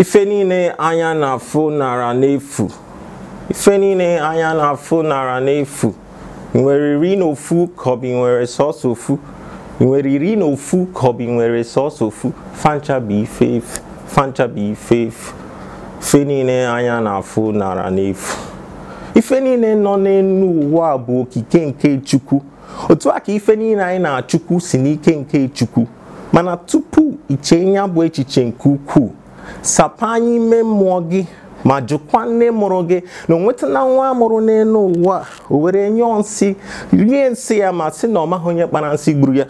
ife niile anya na-afụ nara n'efu ife niile anya na-afụ nara nwere iri na ofu ka nwere sọọsọ ofu facha nwere ife ifu ife niile anya na-afụ nara n'efu ife niile nọ n'elu ụwa bụ okike nke chukwu otu a ka ife niile anyị na-achukwu si n'ike nke chukwu mana tupu iche ya bụ echiche nke ukwuu sapa anya ime mmụọ gị ma jụkwa nne mụrụ gị na na nwa amụrụ n'elu ụwa o were nyụọ nsị nye nsị ya ma sị na ọ maghị onye kpara nsị gburu ya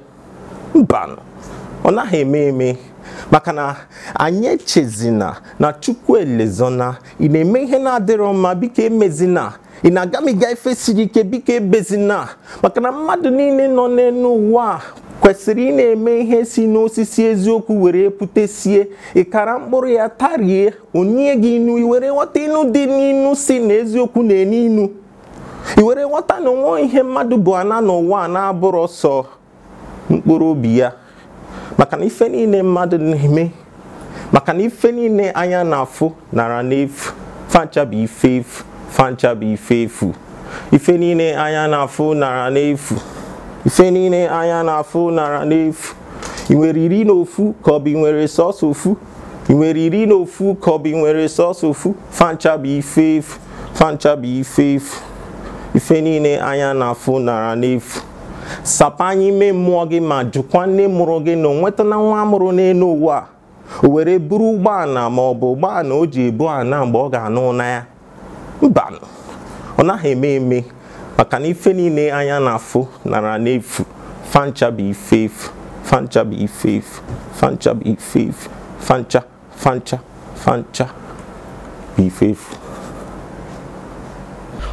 mba ọ naghị eme eme maka na anyị echezina na chukwu elezona ị na-eme ihe na-adịrọ mma biko emezina ị na-agamiga ife siri ike biko ebezina maka na mmadụ niile nọ n'elu ụwa kwesịrị ị na-eme ihe si n'osisi eziokwu were putesie ịkara mkpụrụ ya tarie onye gị inu iwere ghọta inu dị n'inu si na eziokwu na-enu inu iwere ghọta na onwe ihe mmadụ bụ ana n'ụwa na-abụrụ sọ mkpụrụ obi ya maka na ife niile mmadụ na-eme maka na ife niile anya na-afụ nara n'efu fancha bụ ife efu fancha bụ ife efu ife niile anya na-afụ nara n'efu ife niile anya na-afụ nara n'efu ị nwere iri na ofu ka ọ bụ nwere sọsọ ofu ị nwere iri na ofu ka ọ bụ nwere sọsọ ofu fancha bụ ife efu fancha bụ ife efu ife niile anya na-afụ nara n'efu sapanye ime mmụọ gị ma jụkwa nne mụrụ gị na onwetana nwa amụrụ n'elu ụwa o were buru ụgbọala ma ọ bụ ụgbọala o ji ebu ana mgbe ọ ga-anụ na ya mba ọ naghị eme eme maka na ife niile anya na-afụ nara n'efu fancha bụ ife efu fancha bụ ife efu fancha bụ ife efu fancha fancha fancha bụ ife efu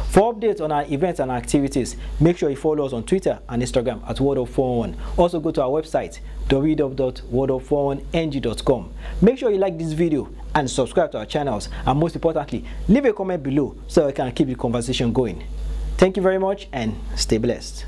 For updates on our events and activities, make sure you follow us on Twitter and Instagram at WordUp411. Also go to our website www.wordup411ng.com. Make sure you like this video and subscribe to our channels and most importantly, leave a comment below so we can keep the conversation going. Thank you very much and stay blessed.